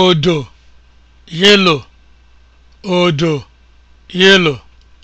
odo yelo! odo yelo!